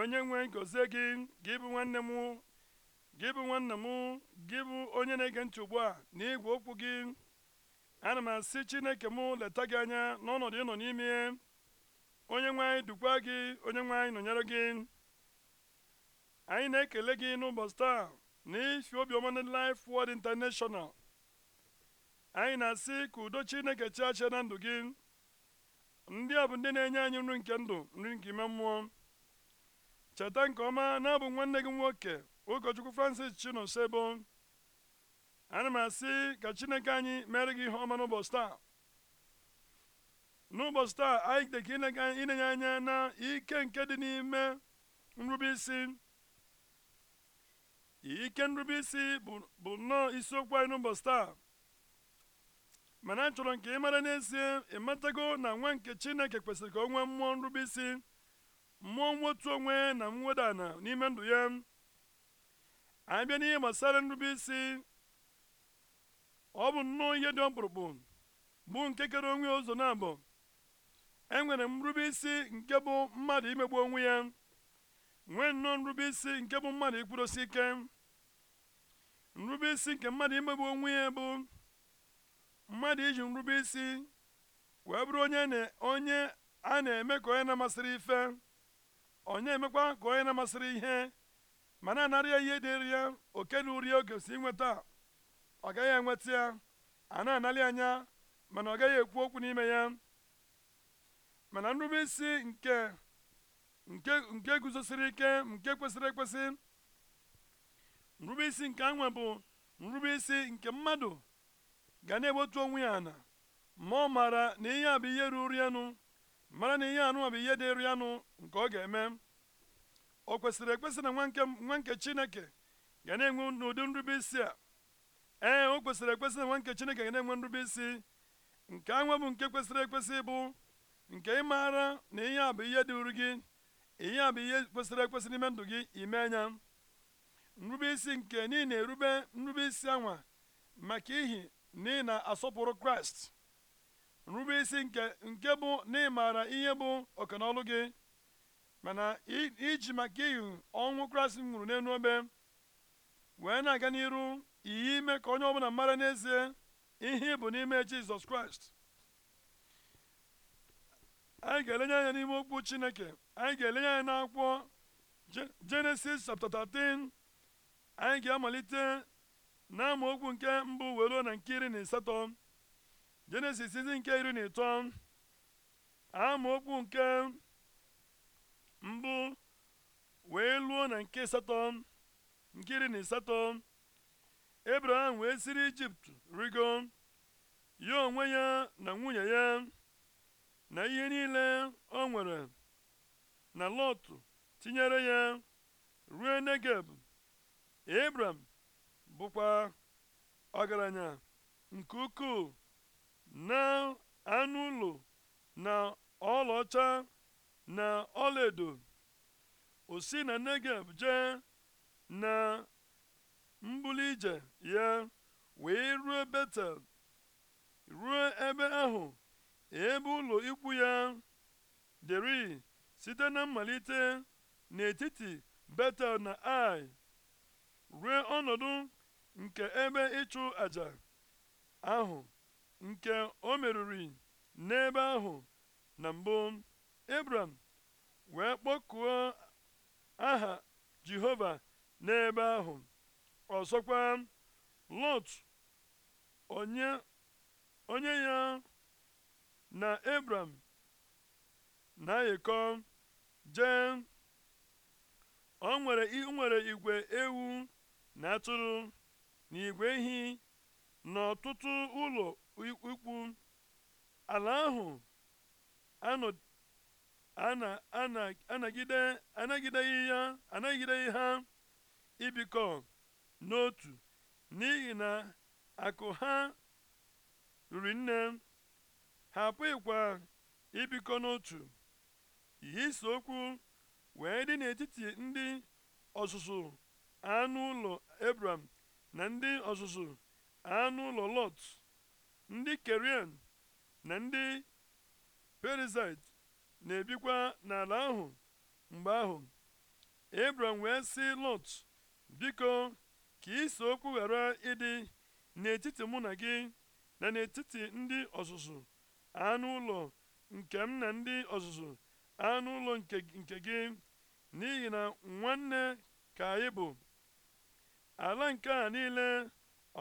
onye nwe gozie gị gị bụ nwanne m gị bụ nwanne m gị bụ onye na-ege ntị ugbu a na igwe okwu gị ana m asị chineke mụ leta gị anya n'ọnọdụ ịnọ n'ime onye nwe anyị dukwa gị onye nwe anyị nọnyere gị anyị na-ekele gị n'ụbọchị taa na ifi obiọma na Life anyị na-asị ka udo chineke chiachie na ndụ gị ndị a bụ ndị na-enye anyị nri nke ndụ nri nke ime mmụọ cheta nke ọma na abụ nwanne gị nwoke ụkọchukwu francis chinosebo ana m asị ka chineke anyị mere gị ihe ọma n'ụbọchị taa n'ụbọchị taa anyị dịka ịnenye anya na ike nke dị n'ime nrubeisi ike nrubeisi bụ nnọọ isiokwu anyị n'ụbọchị taa mana chọrọ nke ị mara n'ezie ịmatago na nwa nke chineke kwesịrị ka o nwee mmụọ nrube isi mmụọ mwetu onwe na mweda ala n'ime ndụ ya anyị bịa n'ihe gbasara nrube isi ọ bụ nnọọ ihe dị ọkpụrụkpụ bụ nke kere onwe ụzọ na abụọ enwere m nrube isi nke bụ mmadụ imegbu onwe ya nwee nnọọ nrube isi nke bụ mmadụ ikwudosi ike nrube isi nke mmadụ imegbu onwe ya bụ mmadụ iji nrube isi wee bụrụ onye a na-eme ka onye na-amasịrị ife onye emekwa ka onye na-amasịrị ihe ma na-anara ya ihe dịrị ya oke na uri oge si nweta ọ gaghị enweta ya a na anarị anya mana ọ gaghị ekwu okwu n'ime ya mana nrube isi nke nke guzosiri ike nke kwesịrị ekwesị nrube isi nke anwe bụ nrube isi nke mmadụ ga na-ewetu onwe ya ana ma ọ maara na ihe a bụ ihe ruru ya nụ mara na ihe anụnwa bụ ihe dịrị ya nke ọ ga-eme o kwesịrị ekwesị na nwa nke chineke ga na-enwe n'ụdị nrube isi a ee o kwesịrị ekwesị na nwa nke chineke ga na-enwe nrube isi nke anwa bụ nke kwesịrị ekwesị bụ nke ịmara na ihe a bụ ihe dịrị gị ihe a bụ ihe kwesịrị ekwesị n'ime ndụ gị ime anya nrube isi nke niile erube nrube isi anwa maka ihi na ị na-asọpụrụ kraịst rube isi nke nke bụ na ịmaara ihe bụ ọkanaọlụ gị mana iji maka iyi ọnwụ Kraịst nwụrụ n'elu ebe wee na-aga n'iru iyi ime ka onye ọbụla mara n'ezie ihe bụ n'ime Jizọs Kraịst anyị ga-elenye anya n'ime okwu Chineke anyị ga-elenye anya n'akwụkwọ Genesis chapter 13 anyị ga-amalite na okwu nke mbụ wee na nke iri na ịsatọ. jenesis isi nke iri na ịtọ amaokwu nke mbụ wee luo na nke asatọ nke iri na ịsatọ abraham wee siri ijipt rigo ya onwe ya na nwunye ya na ihe niile o nwere na lot tinyere ya ruo negeb abraham bụkwa ọgaranya nke ukwuu na anụ ụlọ na ọlaọcha na ọlaedo o si na Negev jee na mbuli ije ya wee ruo Betel ruo ebe ahụ ebe ụlọ ikwu ya dịrị site na mmalite n'etiti Betel na Ai ruo ọnọdụ nke ebe ịchụ aja ahụ nke o meriri n'ebe ahụ na mbụ Ebram wee kpọkụọ aha Jehova n'ebe ahụ ọzọkwa Lot onye ya na Ebram na-ayịkọ jee o nwere igwe ewu na atụrụ na igwe ehi na ụlọ ikwu ala ahụ anagideghị ya anagideghị ha ibikọ n'otu n'ihi na akụ ha riri nne ha apụghịkwa ibikọ n'otu ihe okwu wee dị n'etiti ndị ọzụzụ anụ ụlọ ebram na ndị ọzụzụ anụ ụlọ lot ndị kerian na ndị perizit na-ebikwa n'ala ahụ mgbe ahụ ebram wee sị lọt biko ka ise okwu ghara ịdị n'etiti mụ na gị na n'etiti ndị ọzụzụ anụ ụlọ nke m na ndị ọzụzụ anụ ụlọ nke gị n'ihi na nwanne ka anyị bụ ala nke a niile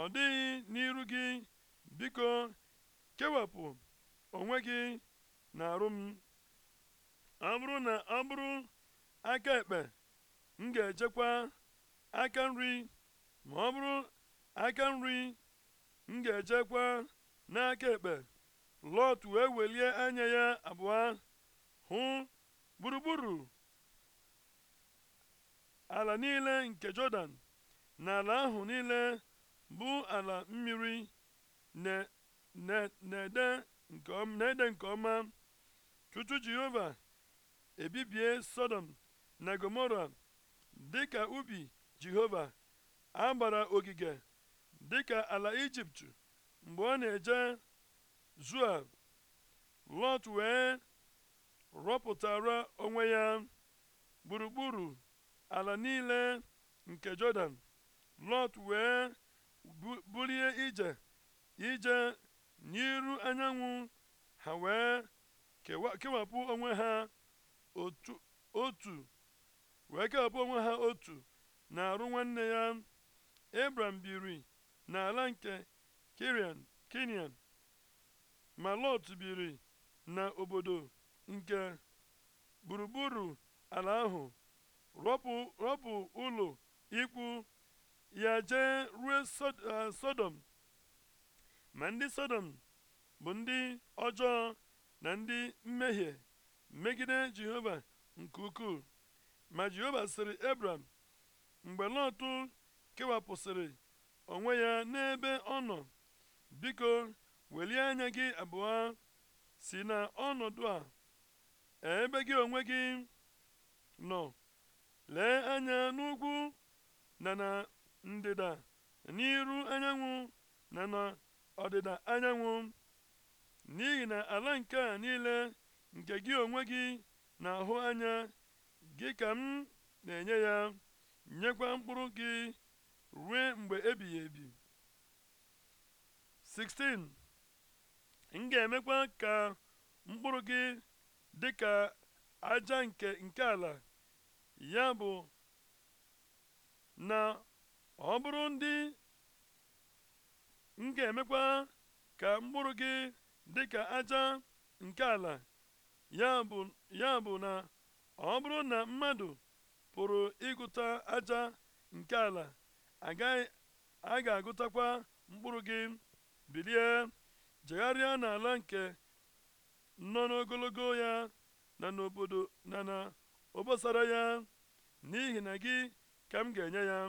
ọ dịghị n'iru gị biko kewapụ onwe gị na-arụ m ọ bụrụ na ọ bụrụ aka ekpe m ga-ejekwa aka nri ma ọ bụrụ aka nri m ga-ejekwa n'aka ekpe lọt wee welie anya ya abụọ hụ gburugburu ala niile nke jọdan na ala ahụ niile bụ ala mmiri na-ede nke ọma tutu jehova ebibie sodom na gomora dịka ubi jehova a gbara ogige dịka ala ijipt mgbe ọ na-eje zua lọt wee rọpụtara onwe ya gburugburu ala niile nke jọdan lọt wee bulie ije ije n'iru anyanwụ ha wee kewapụ onwe ha otu wee kewapụ onwe ha otu na-arụ nwanne ya abram biri n'ala nke Kirian Kinian ma Lot biri na obodo nke gburugburu ala ahụ rọpụ ụlọ ikwu ya jee ruo eh, Sodom ma ndị sodom bụ ndị ọjọọ na ndị mmehie megide jehova nke ukwuu ma jehova sịrị ebram mgbe lọtụ kewapụsịrị onwe ya n'ebe ọ nọ biko welie anya gị abụọ si na ọnọdụ a ebe gị onwe gị nọ lee anya n'ugwu na na ndịda n'iru anyanwụ na na ọdịda anyanwụ n'ihi na ala nke a niile nke gị onwe gị na-ahụ anya gị ka m na-enye ya nyekwa mkpụrụ gị ruo mgbe ebighị ebi 16 m ga-emekwa ka mkpụrụ gị dị ka aja nke nke ala ya bụ na ọ bụrụ ndị m ga-emekwa ka mkpụrụ gị dị ka aja nke ala ya bụ na ọ bụrụ na mmadụ pụrụ ịgụta aja nke ala agaghị a ga-agụtakwa mkpụrụ gị bilie jegharịa n'ala nke nọ n'ogologo ya na n'obodo na na obosara ya n'ihi na gị ka m ga-enye ya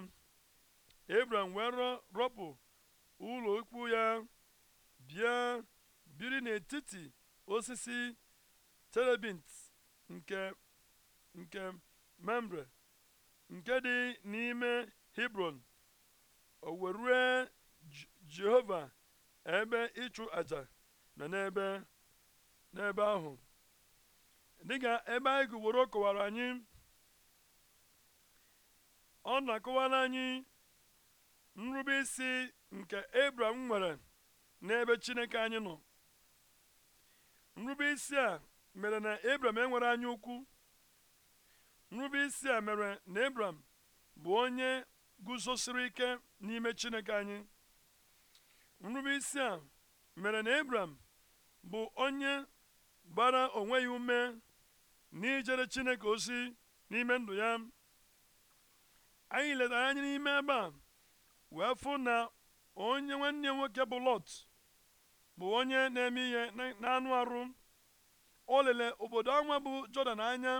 Abraham wee rọpụ ụlọ ikwu ya bịa biri n'etiti osisi terebint nke nke membre nke dị n'ime hebron o weruo jehova ebe ịchụ aja na n'ebe n'ebe ahụ dịka ebe anyị gụworo kọwara anyị ọ na-akọwara anyị nrube isi nke abraham nwere n'ebe chineke anyị nọ nrube isi a mere na abraham enwere anya ukwu nrube isi a mere na abraham bụ onye guzosiri ike n'ime chineke anyị nrube isi a mere na abraham bụ onye gbara onwe ya ume n'ijere chineke ozi n'ime ndụ ya anyị letara anya n'ime ebe a wee fụ na onye nwanne nwoke bụ lọt bụ onye na-eme ihe n'anụ arụ o lele obodo anwa bụ jọdan anya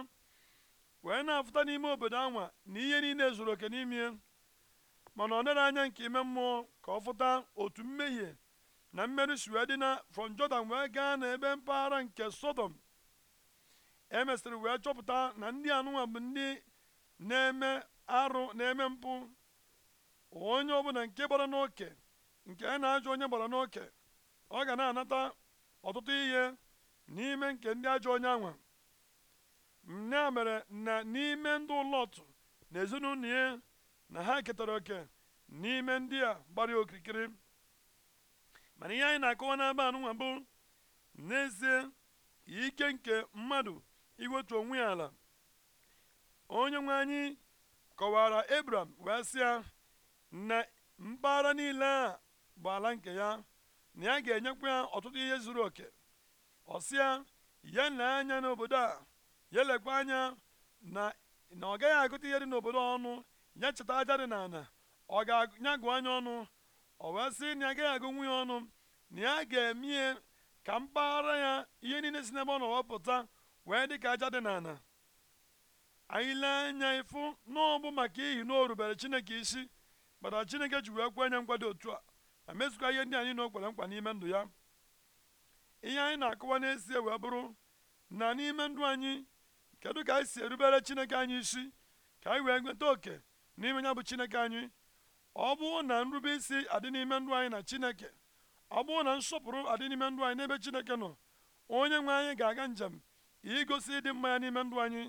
wee na-afụta n'ime obodo anwa na ihe niile zuru oke n'ime mana ọ nere anya nke ime mmụọ ka ọ fụta otu mmehie na mmeri si wee dị na from jọdan wee gaa n'ebe mpaghara nke sodom emesịrị wee chọpụta na ndị anụnwa ndị na-eme arụ na-eme mpụ onye ọbụla nke gbara n'oke nke na-ajụ onye gbara n'oke ọ ga na-anata ọtụtụ ihe n'ime nke ndị ajọ onye anwa ya mere na n'ime ndị ụlọtụ na ezinụlọ ya na ha ketara oke n'ime ndị a gbara okirikiri mana ihe anyị na-akọwa n'aba anụnwa bụ n'ezie ike nke mmadụ iwetu onwe ya ala onye nwe anyị kọwara Ebram wee sịa na mpaghara niile a bụ ala nke ya na ya ga-enyekwa ya ọtụtụ ihe zuru oke ọsịa ya na anya n'obodo a ya lekwa anya na na ọ gaghị agụta ihe dị n'obodo ọnụ ya cheta aja dị n'ala ọ ga nya gụọ anya ọnụ ọ wee sị na ya agaghị agụ nwunye ọnụ na ya ga-emie ka mpaghara ya ihe niile si n'ebe ọ nọ wepụta wee dị ka aja dị n'ala anyị lee anya ịfụ na ọ bụ maka ihi na o rubere Chineke isi mana chineke ji wee kwe nye dị otu a ma ihe ndị anyị na okwere mkpa n'ime ndụ ya ihe anyị na-akọwa n'ezie wee bụrụ na n'ime ndụ anyị kedu ka anyị si erubere chineke anyị isi ka anyị wee nweta oke n'ime ya bụ chineke anyị ọ bụ na nrube isi adị n'ime ndụ anyị na chineke ọ bụ na nsọpụrụ adị n'ime ndụ anyị n'ebe chineke nọ onye nwe anyị ga-aga njem igosi ịdị mma ya n'ime ndụ anyị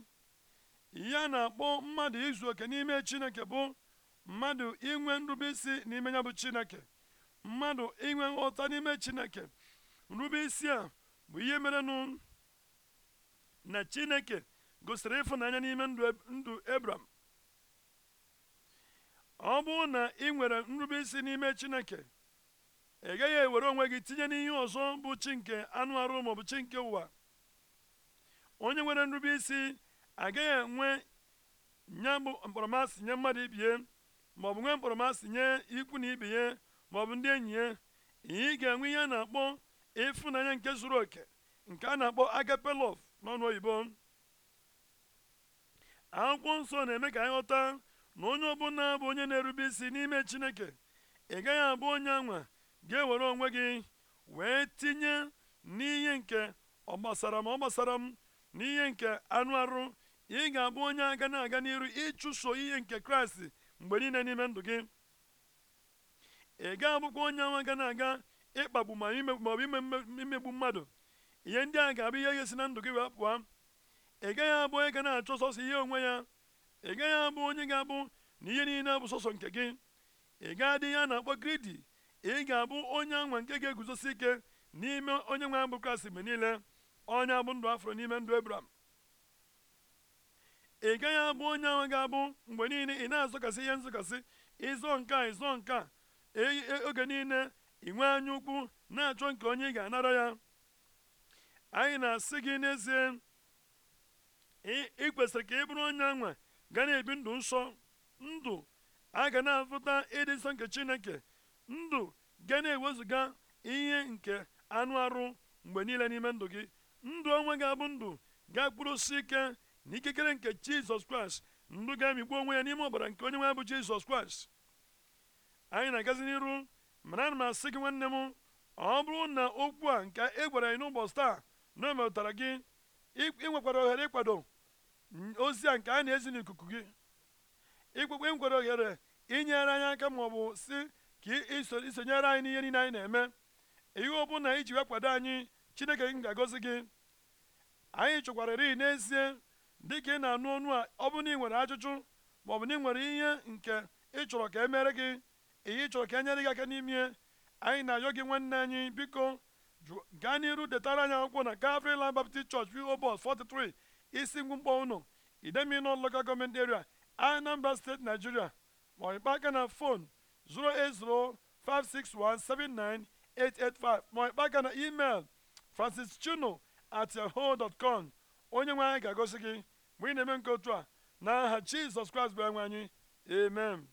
ihe a na-akpọ mmadụ izu oke n'ime chineke bụ mmadụ inwe nrube isi n'ime ya bụ chineke mmadụ inwe nghọta n'ime chineke nrube isi a bụ ihe mere nụ na chineke gosiri ịfụnanya n'ime ndụ ebram ọ bụrụ na ị nwere nrube isi n'ime chineke ị gaghị ewere onwe gị tinye n'ihe ọzọ bụ chi nke anụ arụ maọbụ chi nke ụwa onye nwere nrube isi agaghị enwe nya bụ mkparamasị nye mmadụ ibie bụ nwee mkpọrọmasị nye ikwu na ibe ya maọbụ ndị enyi ya ị ga-enwe ihe a na-akpọ ịfụnanya nke zuru oke nke a na-akpọ agape love n'ọnụ oyibo akwụkwọ nsọ na-eme ka anyị ghọta na onye ọbụla bụ onye na-erube isi n'ime chineke ị gaghị abụ onye anwa ga-ewere onwe gị wee tinye n'ihe nke ọ gbasara m ọ gbasara m n'ihe nke anụ arụ ị ga-abụ onye aga na-aga n'iru ịchụso ihe nke kraịst mgbe niile n'ime ndụ gị ị ga abụkwa onye anwa ga na-aga ịkpagbu ma ọ imegbu mmadụ ihe ndị a ga-abụ ihe ga si na ndụ gị wee pụọ ị gaghị abụ onye ga na-achọ sọsọ ihe onwe ya ị gaghị abụ onye ga-abụ na ihe niile bụ sọsọ nke gị ị ga-adị ihe a na-akpọ gridi ị ga-abụ onye anwa nke ga-eguzosi ike n'ime onye nwe abụ Kraịst mgbe niile onye abụ ndụ afro n'ime ndụ Ebram ị gaghị abụ onye ahụ ga-abụ mgbe niile ị na-azọkasị ihe nzọkasị ịzọ nke a ịzọ nke a e, e, oge niile inwe anya ukwu na-achọ nke onye ị ga-anara ya anyị na-asị gị n'ezie ị kwesịrị ka ị bụrụ onye anwa gana na-ebi ndụ nsọ ndụ a ga na-afụta ịdị nsọ nke chineke ndụ ga na-ewezụga ihe nke anụ arụ mgbe niile n'ime ndụ gị ndụ onwe ga-abụ ndụ ga osisi ike n'ikikere nke jizọs kraịst ndụ ga-amịkpu onwe ya n'ime ọbara nke onye nwe bụ jizọs kraịst anyị na-agazi n'iru mana ana m asị gị nwanne m ọ bụrụ na okwu a nke e gwara anyị n'ụbọchị taa na o metụtara gị ị nwekwara ohere ịkwado ozi a nke a na-ezi n'ikuku gị ikpekpe nkwere ohere inyere anyị aka ma ọ bụ si ka isonyere anyị n'ihe niile anyị na-eme ihe na iji wee kwado anyị chineke gị ga-agọzi gị anyị chọkwarịrị n'ezie dị ka ị na-anụ ọnụ a ọ bụrụ na ị nwere ajụjụ ma ọ bụ na ị nwere ihe nke ị chọrọ ka e gị ihe ị chọrọ ka e nyere gị aka n'ime anyị na-ayọ gị nwanne anyị biko gaa n'iru detara anyị akwụkwọ na Calvary Land Baptist Church PO 43 isi ngwụmkpọ ụnụ Idemili Local Government Area Anambra steeti Nigeria ma ọ aka na fon 08056179885 ma ọ kpaa aka na email chuno at yahoo dot com onye nwe anyị ga-agosi gị mgbe ị na-eme nke otu a n'aha jizọs kraịst bụ enwe anyị amen